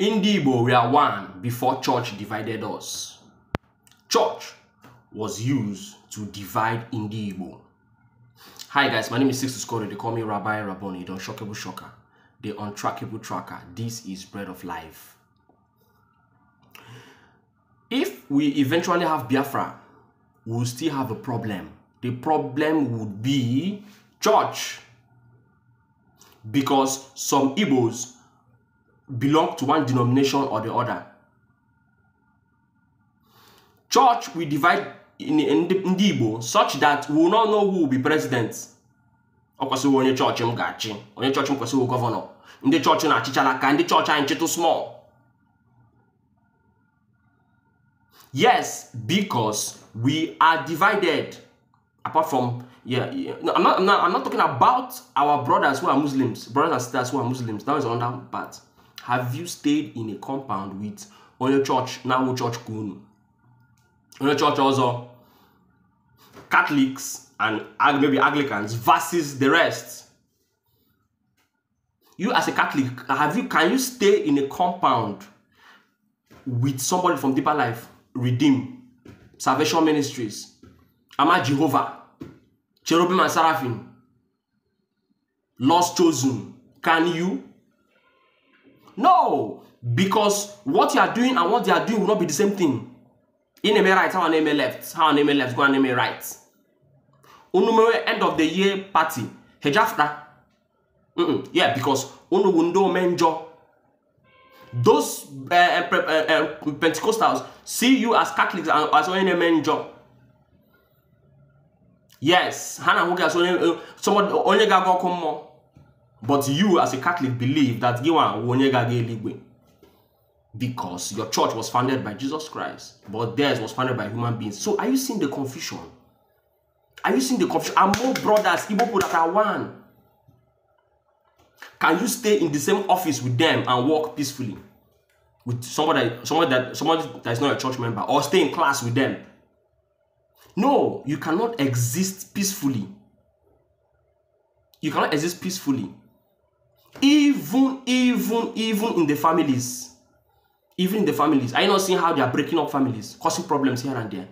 Ndị Igbo are one before church divided us. Church was used to divide Ndị Igbo. Hi guys, my name is Sixus Scotty. They call me Rabbi Raboni, the unshockable shocker, the untrackable tracker. This is bread of life. If we eventually have Biafra, we'll still have a problem. The problem would be church. Because some Igbos belong to one denomination or the other. Church will divide in, in, in such that we will not know who will be president. Ọ church, onye chọọchị m ga-achị, onye chọọchị m kwesịrị gọvanọ. Ndị chọọchị na-achịchala ka ndị chọọchị anyị chịtụ small. Yes, because we are divided. Apart from yeah, yeah. No, I'm not, I'm not I'm not talking about our brothers who are Muslims, brothers and sisters who are Muslims. That is another part. Have you stayed in a compound with Onye Church, Nawo Church Kunu? Onye Church also Catholics and maybe Anglicans versus the rest. You as a Catholic, have you can you stay in a compound with somebody from deeper life, redeem, salvation ministries, Ama Jehovah, cherubim and seraphim, lost chosen? Can you? No, because what you are doing and what they are doing will not be the same thing. In name right, how name left, how name left, go name right. Unumere end of the year party. Hejafta. Mm-mm. Yeah, because unu wundo menjo. Those uh, uh, uh, Pentecostals see you as Catholics and as only menjo. Yes, Hana Huga, eh, so only God come more. But you, as a Catholic, believe that because your church was founded by Jesus Christ, but theirs was founded by human beings. So are you seeing the confusion? Are you seeing the confusion? Are more brothers, Igbo people that are one? Can you stay in the same office with them and work peacefully? With somebody, somebody that someone that is not a church member, or stay in class with them. No, you cannot exist peacefully. You cannot exist peacefully even, even, even in the families. Even in the families. Are you not seeing how they are breaking up families, causing problems here and there?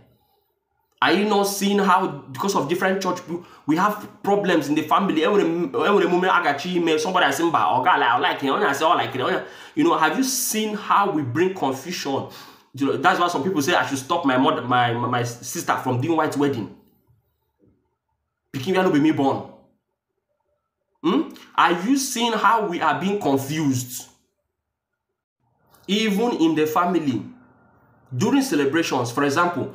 Are you not seeing how, because of different church, we have problems in the family? Every, every moment I got you, somebody has seen by, oh God, I like it, I say, oh, like it. Oh, you know, have you seen how we bring confusion? You know, that's why some people say I should stop my mother, my, my, sister from doing white wedding. Picking, you know, be me born. Are you seeing how we are being confused? Even in the family, during celebrations, for example,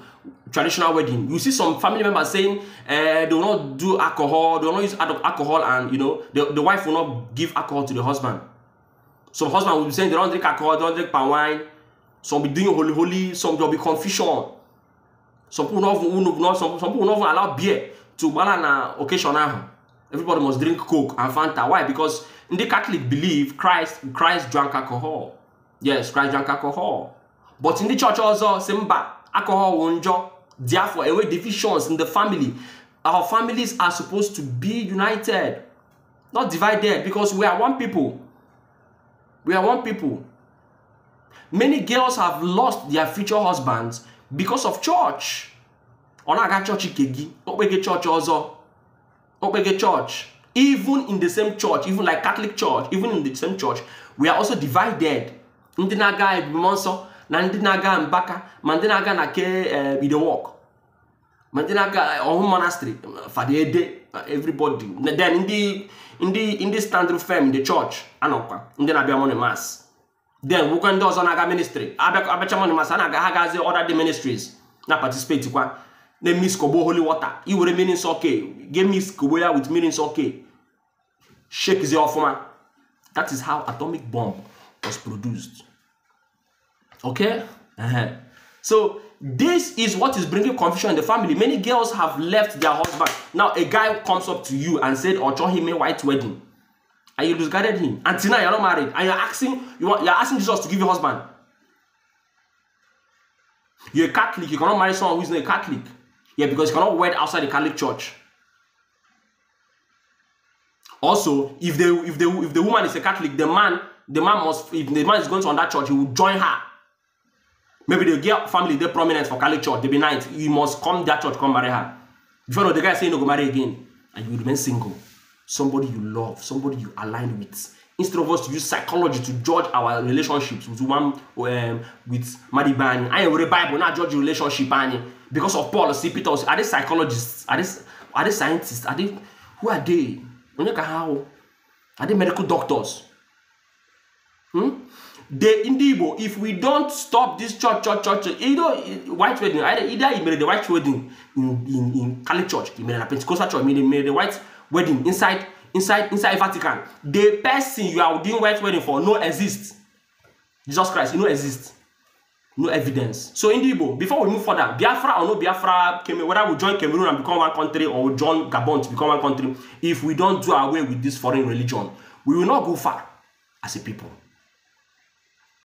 traditional wedding, you see some family members saying uh, they will not do alcohol, they will not use alcohol, and you know the, the wife will not give alcohol to the husband. Some husband will be saying they don't drink alcohol, they don't drink palm wine. Some be doing holy holy, some there will be confusion. Some people not, will not some, some people not allow beer to balance an occasion ahụ. Everybody must drink Coke and Fanta. Why? Because in the Catholic belief, Christ Christ drank alcohol. Yes, Christ drank alcohol. But in the church also, Simba, alcohol won't drop. Therefore, away divisions in the family. Our families are supposed to be united, not divided, because we are one people. We are one people. Many girls have lost their future husbands because of church. o na-aga chọọchị kegi, Kokpege church, even in the same church, even like Catholic church, even in the same church, we are also divided. Ndị na-aga ebume nsọ na ndị na-aga Mbaka ma ndị na-aga na ke eh, Idewok ma ndị na-aga eh, Ọhụụ monastery Fadede everybody then ndị ndị ndị stand firm in the church anọkwa ndị na-abịa morning mass then nwekwa ndị ọzọ na-aga ministry abịacha morning mass a na-aga ha gazi other the ministries na participate kwa na mix kobo holy water i were mmiri nsọ ke Give me kọgbo with with mmiri nsọ ke shakezie ọfụma that is how atomic bomb was produced okay uh -huh. so this is what is bringing confusion in the family many girls have left their husband now a guy comes up to you and said ọchọ him a white wedding and you discarded him until now you're not married and you're asking you want, you're asking jesus to give you husband you're a catholic you cannot marry someone who is not a catholic Yeah, because you cannot wed outside the Catholic Church. Also, if the if the if the woman is a Catholic, the man the man must if the man is going to that church, he will join her. Maybe the girl family they prominent for Catholic church, they be nice. You must come that church, come marry her. Before you know, the guy saying no go marry again, and you remain single. Somebody you love, somebody you align with instead of us to use psychology to judge our relationships with one um, with Madibani. I read the Bible, not judge relationship because of Paul see Peter. are they psychologists? Are they are they scientists? Are they who are they? How are they medical doctors? Hmm? The Indibo, if we don't stop this church, church, church, you know, white wedding, either, either he made the white wedding in, in, in church, he made a Pentecostal church, he made, made the white wedding inside inside inside Vatican the person you are doing white wedding for no exist Jesus Christ no exist no evidence so in Igbo before we move further Biafra or no Biafra Cameroon whether we join Cameroon and become one country or we join Gabon to become one country if we don't do away with this foreign religion we will not go far as a people